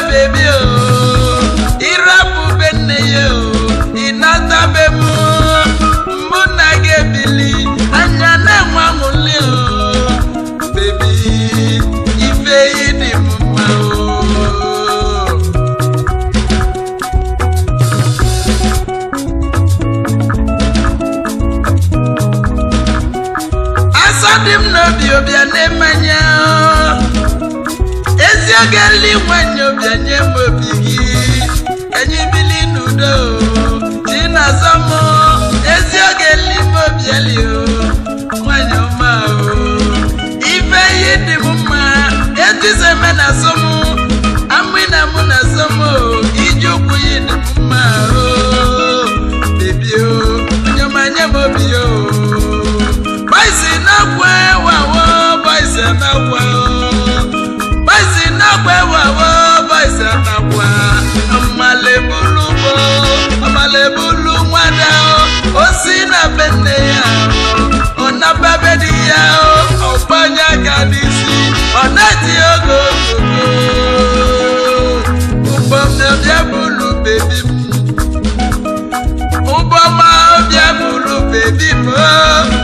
bebi o oh. irapu be nne ya oh. o ịnata be m mụ na gị ebili anya na-enwe anwụli o oh. bebi ife yi dị m mma o asọ dị bịa gali nwanne bịa nye obi gị anyị bili n'udo ezi oge limobieli nwanyị ọma ife ihe dị m mma etizeme na mete ya ona bebe di ya o ọgbanya ka dị si ọna ti ogo ogogo ụgbọ m na bịa bụrụ bebi m ụgbọ ma bịa bụrụ bebi m o.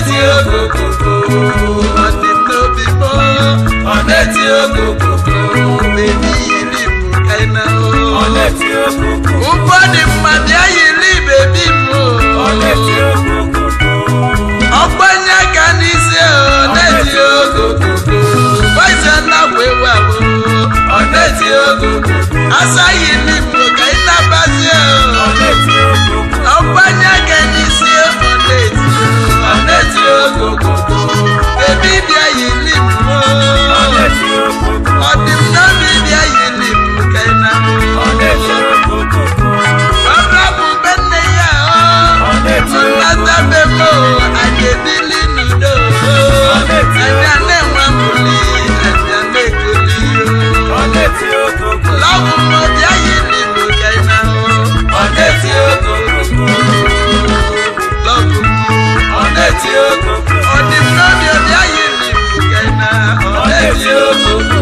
eti ogogogo ọdị n'obi mọ ọneti ogogogo mebi yiri bụ kaina o ọneti ogogogo ụgbọ dị mma bịa yiri bebi m o ọneti ogogogo ọgbanye ka n'isi ọneti ogogogo gbazia na wewa o ọneti ogogogo asaghị m. 有。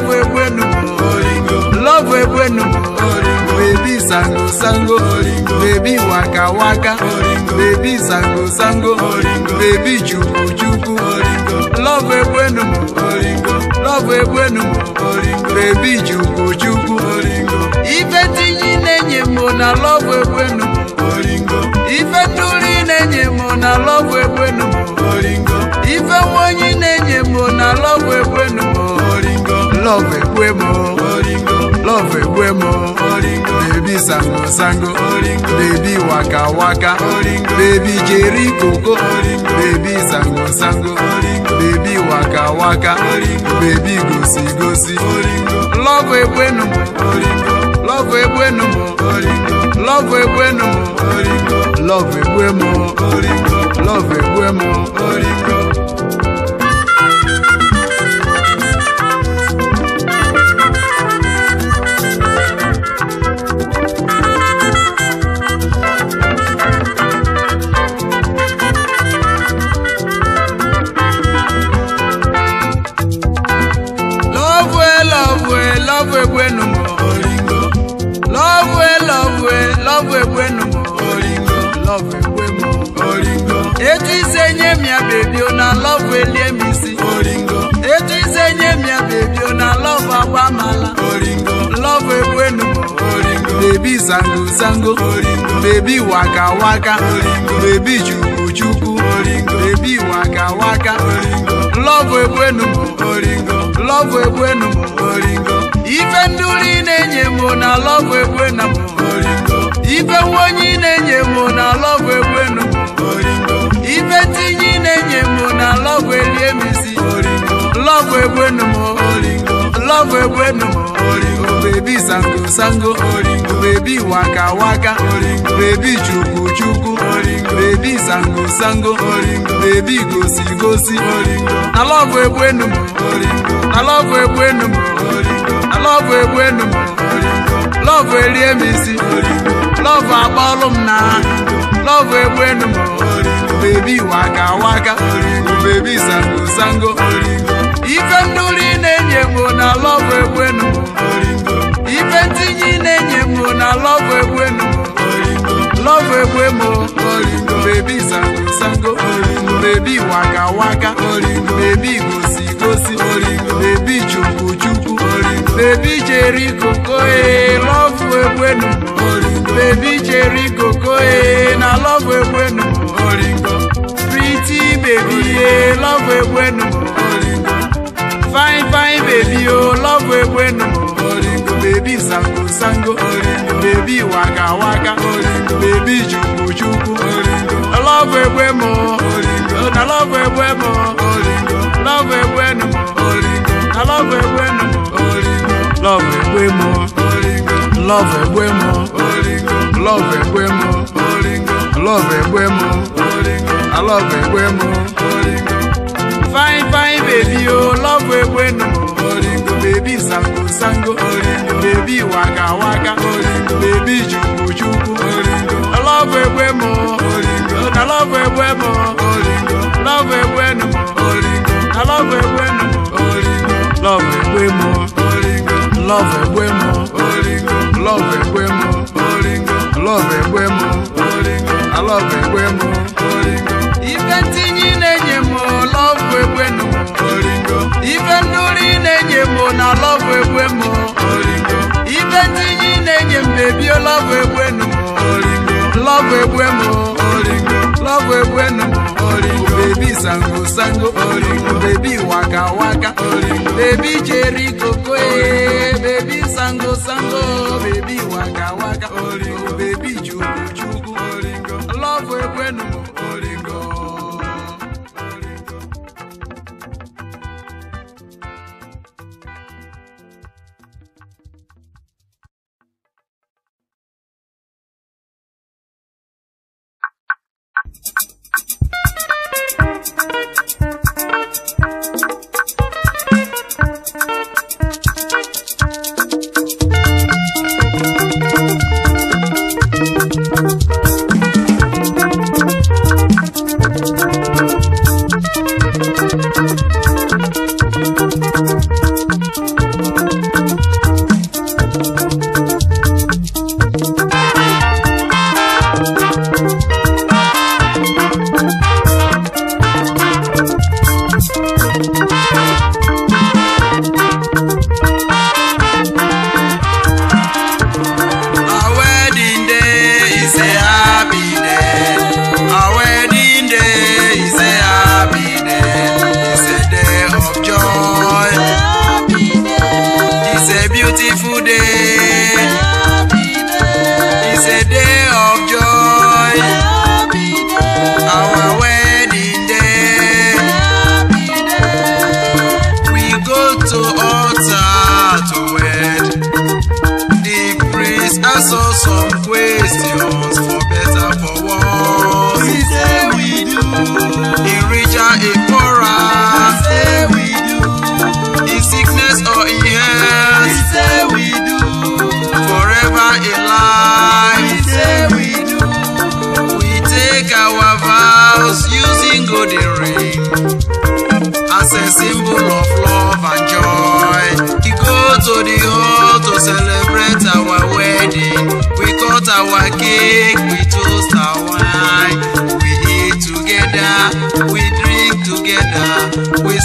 love egbenu love egbenu baby sango sango baby waka waka baby sango sango baby chukwu chukwu love love baby chukwu chukwu ife tinyi na-enye na love egbenu ife tuli na-enye na love ife na na love love Ekwemo love Ekwemo baby sango sango baby waka waka baby jerry Coco, baby sango sango baby waka waka baby gosi gosi love Ekwenu love Ekwenu love Ekwenu love Ekwemo love Ekwemo. sango bebi waka waka bebi chukwu chukwu bebi waka waka lọvụ lọvụ ife nduri na-enye m na lọvụ egbenu m ife na-enye m na lọvụ ife ebi sango sango oringo ebi waka waka oringo ebi chukwu chukwu oringo ebi sango sango oringo ebi gosi gosi oringo alọbụ egbu enu m oringo alọbụ egbu enu m oringo alọbụ egbu enu oringo oringo akpọlụ m na egbu oringo waka waka oringo sango sango ife na-enye na egbu nenye mo na love ewe no love ewe mo baby sango sango baby waka waka baby gosi gosi baby chuku chuku baby cherry coco love ewe no baby cherry coco na love ewe no pretty baby love ewe no fine fine baby oh love ewe no Baby sango sango orindo baby waka waka orindo bebi chuku chukwu orindo love way more orindo I love way more orindo love egbe nu more orindo I love egbe nu more orindo love egbe mo orindo love egbe mo orindo love egbe mo orindo love egbe mo orindo i love way more orindo fine fine baby oh love egbe nu more baby sango sango orindo baby waka waka orindo baby chuku juku orindo love way more orindo I love way more orindo love egbe way more orindo I love egbe way more orindo love way more orindo love way more orindo love egbe mo orindo love egbe mo orindo i love egbe mo orindo ibe tinye na lọbụ egwe m oringo ibe ndị yi na-enye m bebi lọbụ egwe nụ m oringo lọbụ egwe m oringo love egwe nụ m oringo baby sango sango oringo baby waka waka oringo bebi jerikoko ee baby sango sango e. baby waka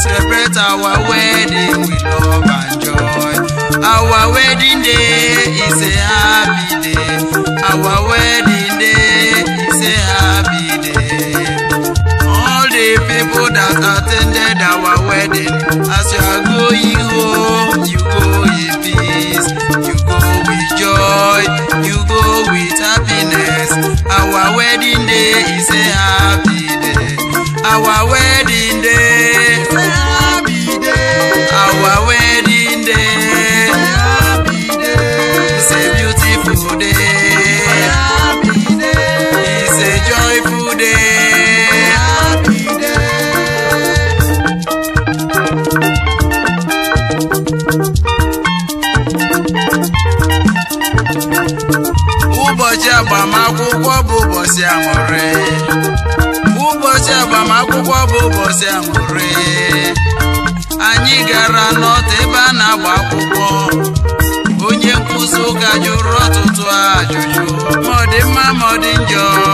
celebrate our wedding with love and joy. Our wedding day is a happy day. Our wedding day is a happy day. All the people that attended our wedding, as you are going home, you go in peace. You go with joy, you go with happiness. Our wedding day is a happy anyị gara n'ọdụ ebe a na-agba akwụkwọ onye nkwụsị ụka jụrụ ọtụtụ ajụjụ ma ọ dị mma ma ọ dị njọ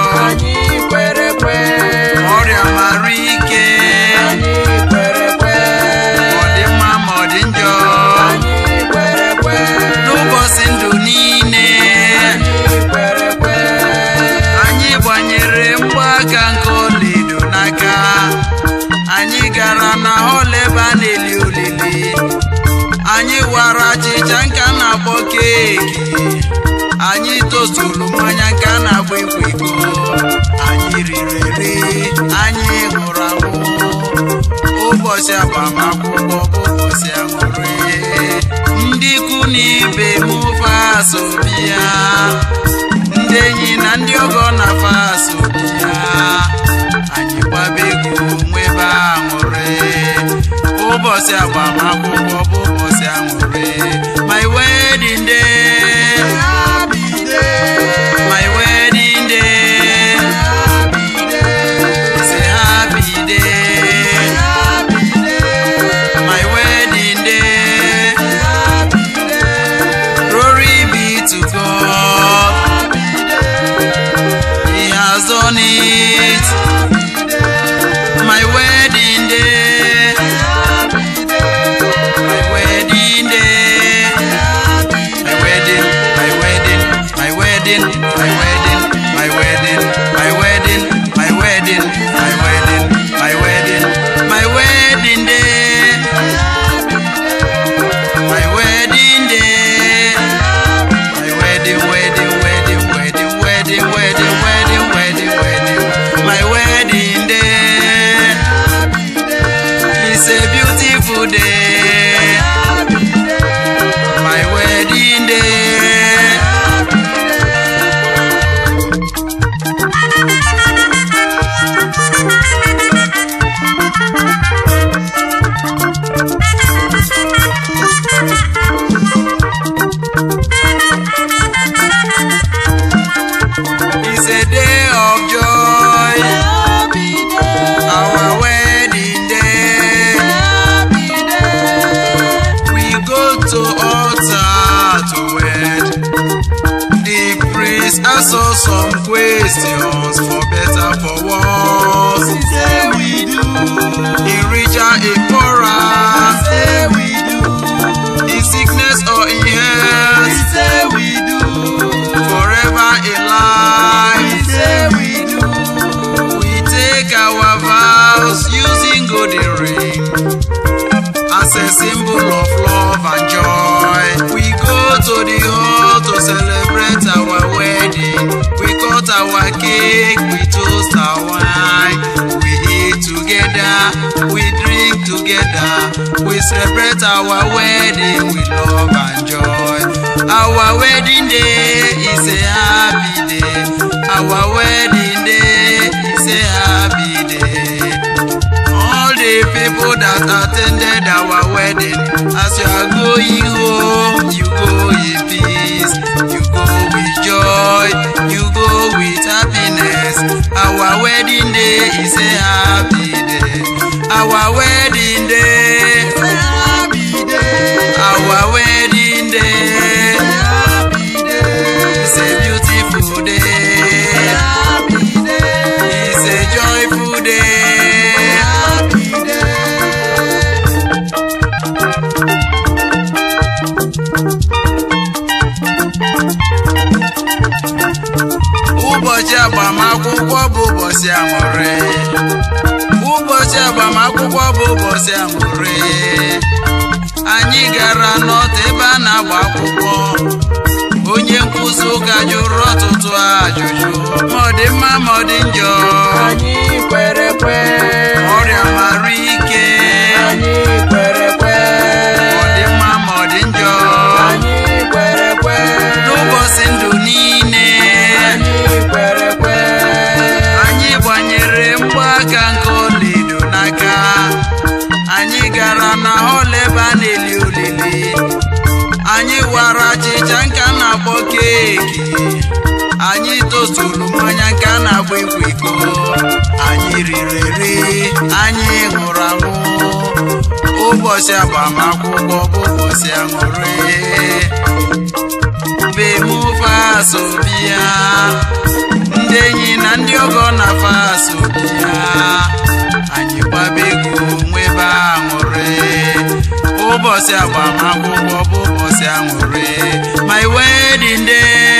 ụbọchị agbamakwụkwọ bụ ụbọchị ihe ndị ikwu na ibe m fa asọmpi ya ndị enyi na ndị ọgọ na fa asọmpi ya anyị gbaba egwu nwebe aṅụrị ụbọchị agbamakwụkwọ bụ Our wedding day is a happy day. Our wedding day is a happy day. All the people that attended our wedding, as you are going home, you go in peace. You go with joy, you go with happiness. Our wedding day is a happy day. Our wedding aṅụrị ụbọchị agbamakwụkwọ bụ ụbọchị aṅụrị anyị gara n'ọtụ ebe a na-agba akwụkwọ onye nkụzi ụka jụrụ ọtụtụ ajụjụ ma ọ dị mma ma ọ dị njọ riri eri anyị ṅụrụ aṅụ ụbọchị agbamakwụkwọ bụ ụbọchị aṅụrị bemufaso bịa ndị enyi na ndị ọgọ na faso bịa anyị gbabego nwebe aṅụrị ụbọchị agbamakwụkwọ bụ ụbọchị aṅụrị my wedding day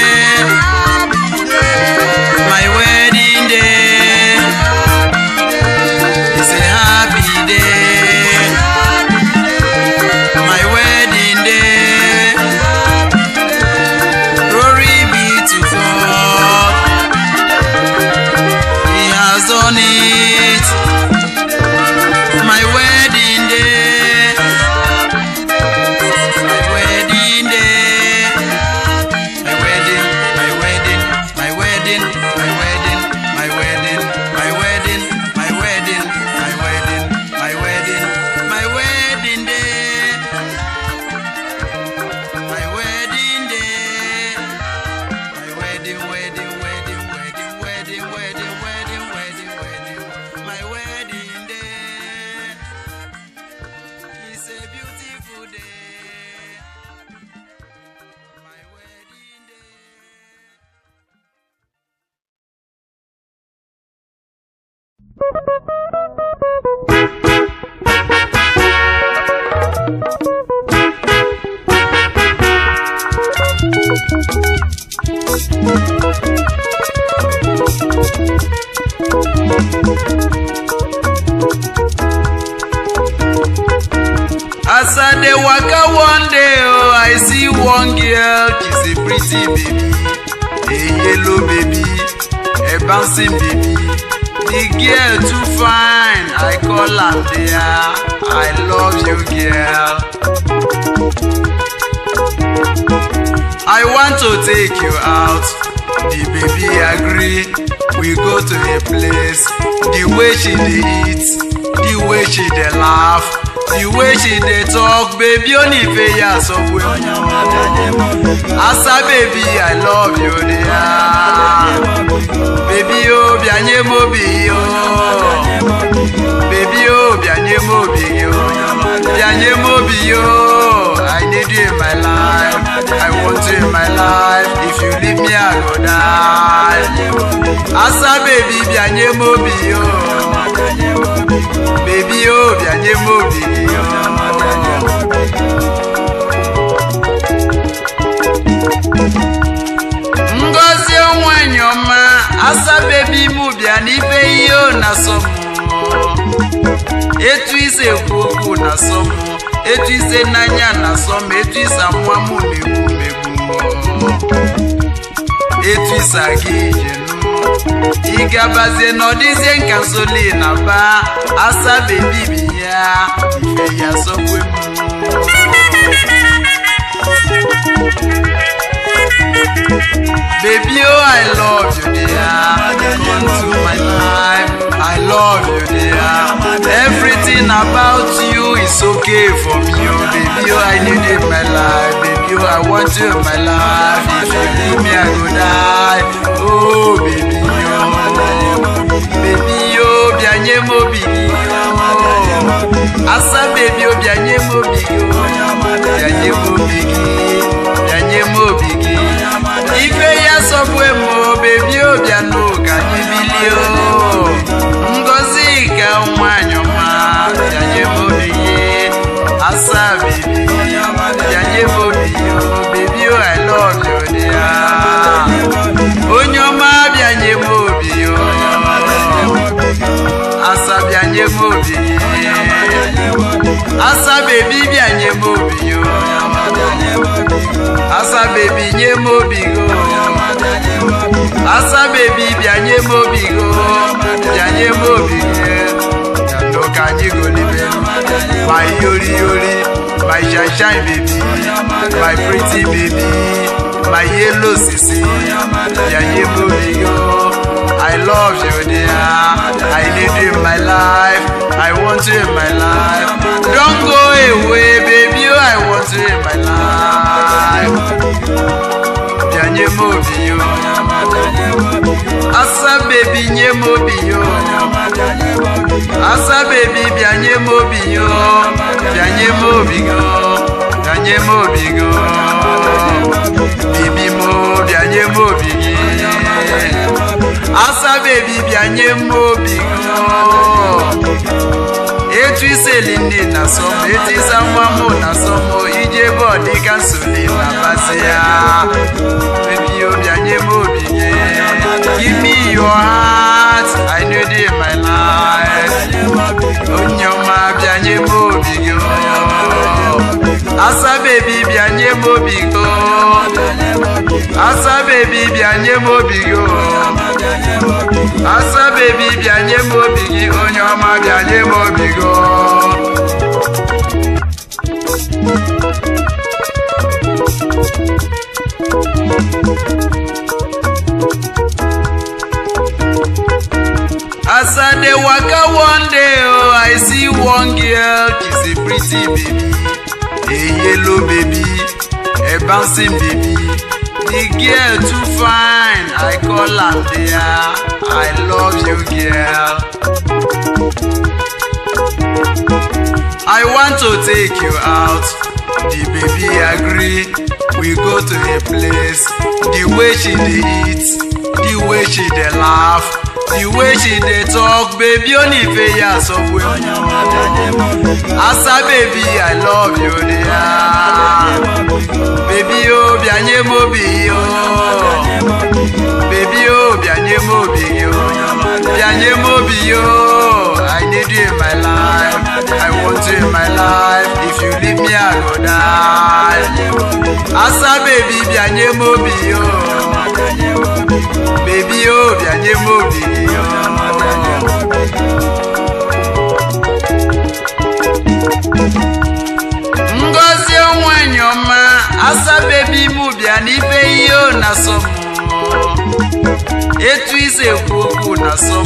see baby dey yellow baby a bouncing baby the girl too fine i call her dear i love you girl. i want to take you out the baby agree we go to a place the way she dey eat the way she dey laugh the way she dey talk baby Onifeya sọ pé asa baby i love you dey ah baby o bianye mo bi o baby o bianye mo bi o bianye mo bi o i need you in my life i want you in my life if you leave me i go die asa baby bianye mo bi o. bebi o bịanye m obi gị ngozi onwenyi ọma asa ime m na ihe ọ na asọ m etu ise ekwu okwu na asọ etu ise n'anya na asọ m etu ise amụma m na megbu etu ise aga ije igabazie n'ọdịzie nka soli asabe bibi ya ife ya sokwe m Baby, oh, I love you, dear. Come to my life. I love you, dear. Everything about you is okay for me, oh, baby. Oh, I need you in my life. Baby, oh, I want you in my life. If you leave me, I go die. Oh, baby. Baby, oh, bianye mobi. Asa baby, oh, bianye mobi. Bianye mobi. Bianye mobi. Ikwe ya sobwe mo, baby, oh, biano, kanyi bilio. asa bebi bịa nye m obi o asa bebi nye m obi o asa bebi bịa nye m obi o bịa nye m obi o ka anyị golibe ma yori yori my shine baby my pretty baby my yellow sisi bịa nye m obi o. I love you, dear. I need you in my life. I want you in my life. Don't go away, baby. I want you in my life. Janye mo biyo. Asa baby nye mo biyo. Asa baby bianye mo biyo. Bianye mo biyo. Bianye mo biyo. Bibi mo bianye mo biyo asabebi bịanye m n'obi etu iseli ndị na sọm etisa nwa mụ na sọm iji ebe ọdịka nsoli na basị ya mebio bịanye m obi nye give me your heart i need it in my life onye ọma bia m obi gị asa baby, bịa nye mo obi go asa baby, bịa nye mo obi go asa baby, bịa nye mo obi gị onye ọma bịa nye mo obi go As I dey waka one day, oh, I see one girl, she's a pretty baby a yellow baby, a bouncing baby. The girl too fine, I call her dear. I love you, girl. I want to take you out. The baby agree. We go to a place. The way she dey the way she dey laugh. The way she dey talk baby Onifeya sọ pé asa baby i love you dey ah baby o bí anyé mo bí o baby o bí anyé mo bí o bí anyé mo bí o i need you in my life i want you in my life if you leave me i go die asa baby bí anyé mo bí o. bebi o bịanye m obi ngozi onwenye ọma asabebi bebi m bịa ibe ihe o na asọ m etu ise ekwu okwu na asọ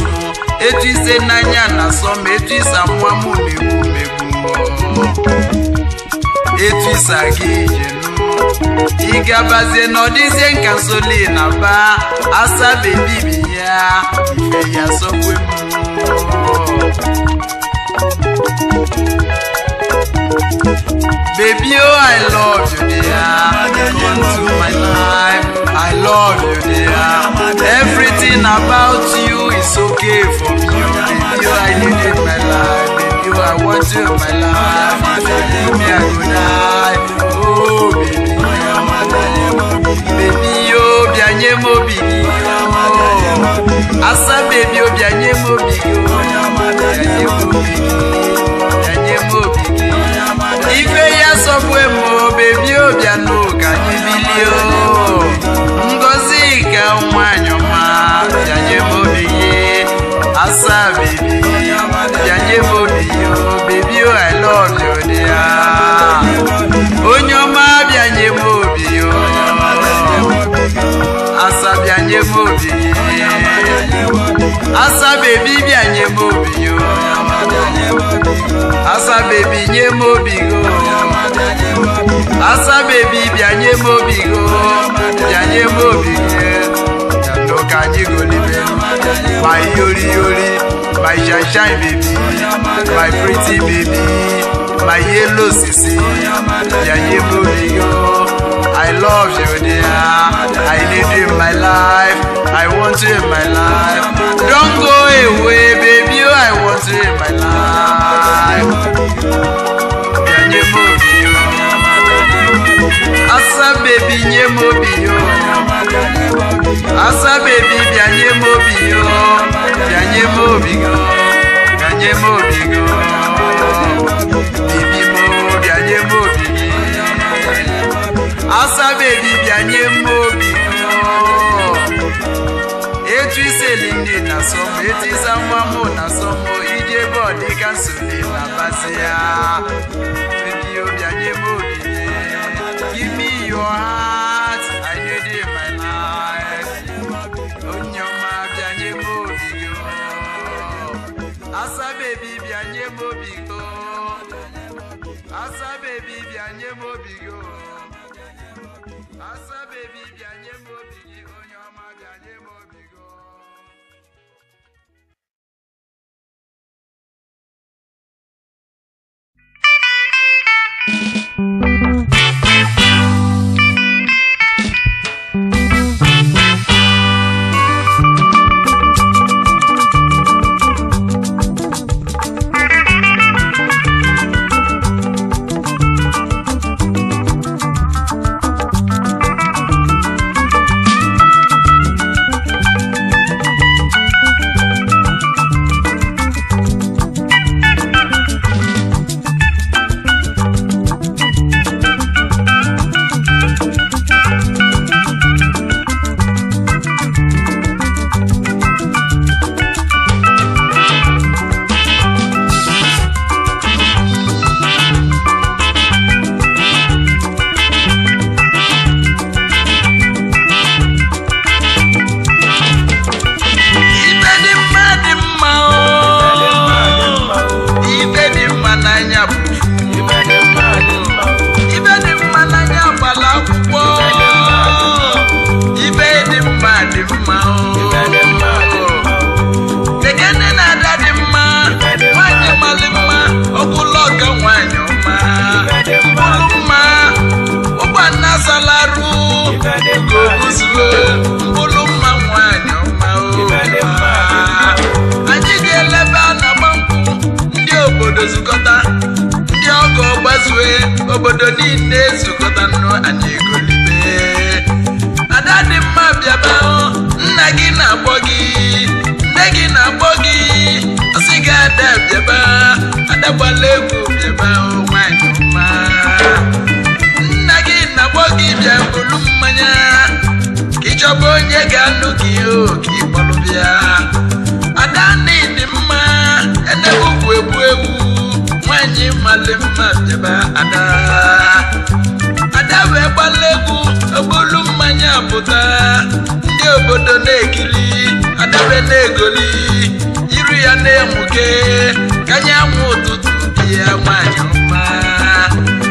etu ise n'anya na asọ etu ise amụma m megbu megbu etu ise aga ije ị n'ọdịzie nka na ba asabe bibi ya ife ya sokwe m Baby, oh, I love you, dear. Come to my life. I love you, dear. Everything about you is okay for me. Oh, baby, oh, I need in my life. Baby, oh, I want you in my life. Baby, I would die. Oh, baby. Baby, oh, bianye mo bigi oh. Asa baby, oh, bianye mo bigi oh. Bianye mo bigi. Ife ya sobwe mo, baby, oh, bianye asa bebi bịa nye m obi yo asa bebi nye m obi go asa bebi bịa nye m obi go bịa nye m obi go ka anyị golibe ma yori yori my shine baby my pretty baby my yellow sisi yaye bobi yo. I love you dear I need you in my life I want you in my life Don't go away baby oh, I want you in my life. Nye mo bi yo, asa baby nye mo bi oh. asa baby bia nye mo bi yo, bia nye mo bi go, bia nye mo bi asabebi bịanye mma obi etu iseli nne na sọm etu ịsa nwa na sọm ije ebe ọ nsogbu na-abasị ya Thank you. gbala egwu mma nna gị na gbọ gị bịa bụrụ mmanya ka onye ga-anụ gị oke ịkpọrọ ada mma egbu egwu nwanyị mmalị mma ada ada wee egwu obolu mmanya pụta ndị obodo na-ekiri adabe na-egoli iru ya na-emuke kanye nwụ ụtụtụ ya nwanyị mma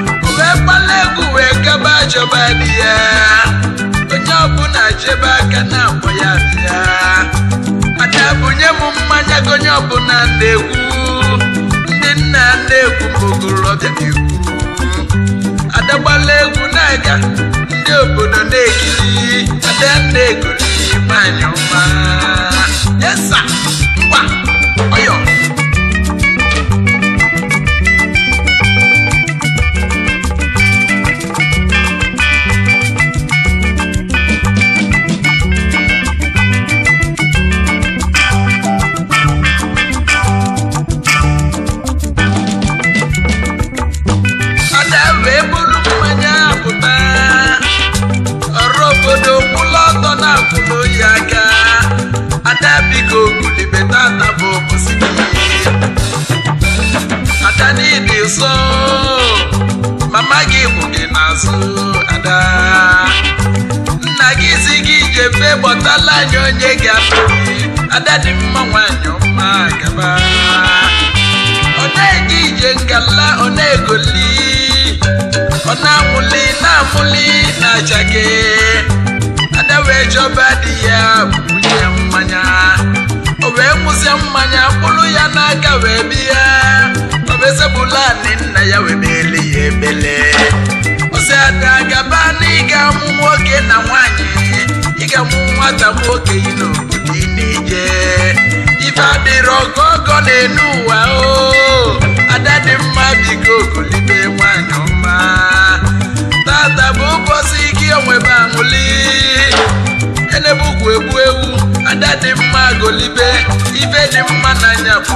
uwe kpala egwu wee gaba achọba di ya onye ọbụla chebe aka na akpọ ya bịa mana bunye m mmanya gị onye ọbụla na-egwu ndị nna na-egwu ma ogorobịa na adagbala egwu na-aga ndị obodo na-ekiri ada esa ngwa ajọ onye ga-afụ ada dị mma anya ọma gaba ọ na-eje ije ngala ọ na-egoli ọ na-amụli na-amụli na achake ada wee chọba di ya bunye mmanya o wee nwụzie mmanya kpụrụ ya n'aka wee bịa ọ bụ ezebulani nna ya wee mele ya ebele ọsị ada gaba n'ịga mụ nwoke na nwanyị Ikem nwata nwoke ino obodo ị na-eje ife adịrị ọgọ ọgọ na-enu ụwa o ada dị mma biko okolibe nwanyị ọma tata bụ ụbọchị ike onwebe amụli enebukwu egbu ewu ada dị mma golibe ife dị mma n'anya bụ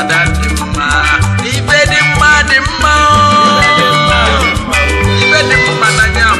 ada dị mma ife dị mma dị mma ife dị mma n'anya